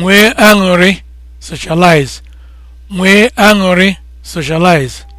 nwee aṅụrị socialize nwee aṅụrị socialize